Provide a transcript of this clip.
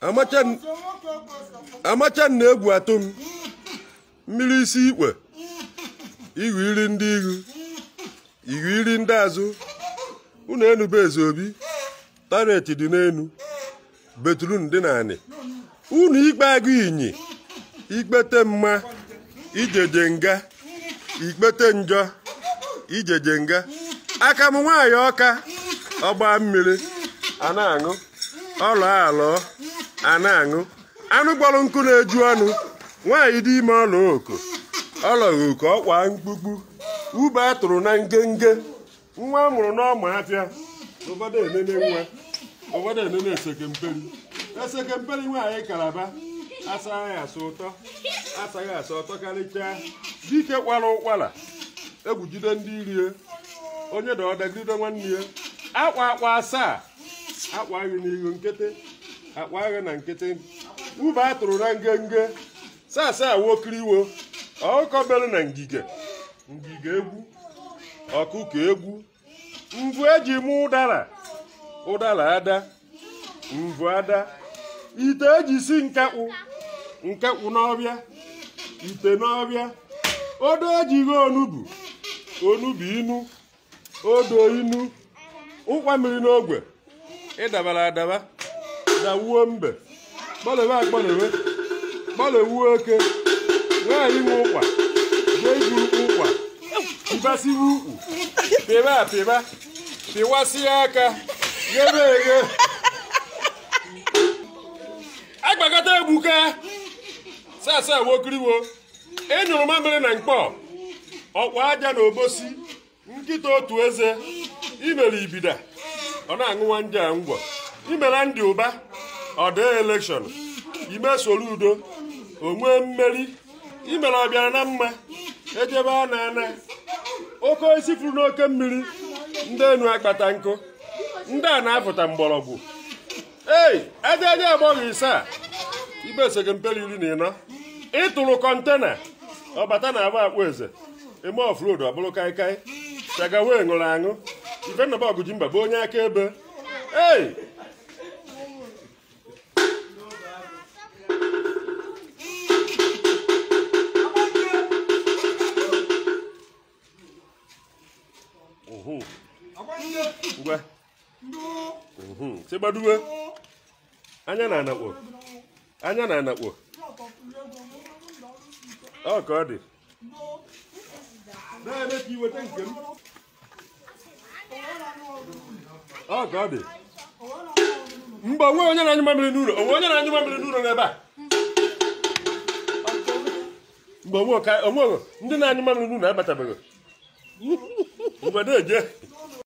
amachan na-egwu atụ mmiri isi ikpe ihu iri ndị ihu ihu iri ndị azụ unu enube eze obi taret dị n'enu betrun dị n'anị unu ikpe agụ inyi ikpete mma ijeje nga ikpete njọ ijeje nga aka m nwaanyị ọka ọgba mmiri a na-aṅụ ọlọ alọ a na-aṅụ anụ gbọrọ nkụ na-eju ọnụ nwaanyị dị ime ọla oko ọlọghị oke ọkwa mkpukpu ube a tụrụ na ngenge nwa a mụrụ n'ọma afịa obodo enene nwa obodo enene esekemperi esekemperi nwaanyị kalaba asaghị asa ụtọ asaghị asa ụtọ karịchaa dike kwara ụkwara egwujide ndị irie onye dọdagide nwanne ya akwa akwa asaa akwa anyị n'ihu nkịtị akpa agha na nkịtị ube a na ngenge sasa wokiriwo ọkọbelu na ngige ngige egwu ọkụkọ egwu mvụ eji mụ ụdara ụdara ada mvụ ada ite ejisi si nkekpụ nkekpụ n'ọbịa ite n'ọbịa odo ejighi onubu onubu inu odo inu ụkwa mmiri n'ogwe ịdabara adaba da wuo mbe gbalịwe agbalịwe gbalịwuo oke nwaanyị nwe ụkwa jee ụkwa pịbasiwe ukwu pịba apịba pịwasịa aka ghebe eghe agbakọta egbuka sasa wokiriwo enyụrụ mamịrị na mkpọ ọkwa aja na obosi nkịta otu eze imere ibida ọ na-aṅụwa ndị a ngwọ imela ndị ụba ọ dee elekshọn ime Soludo onwe mmeri imere ọbịara na mma ejebe a na-ana oke isi furu n'oke mmiri ndị enu akpata nkụ ndị a na-apụta mgbọrọgwụ ei ejeje agbọghọ ise a ibesogị mperi iri na ịnọ ịtụrụ kọntena ọbata na agba akpụ eze eme ofrodu ọ bụrụ kaikai wee ṅụrụ aṅụ nnọba ọgụji mba bụ onye akaebe ei ngwa mhm. anya na anakpo na anakpo ọ ka dị na-eme ka iweta nke m ọ ka ọ dị mgbe onwe onye na-anyụ n'ụlọ onwe onye na n'ụlọ n'ebe a mgbe onwe ndị na